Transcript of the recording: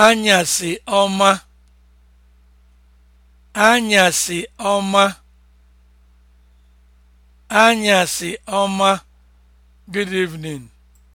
anyasị ọma ọma anyasị good evening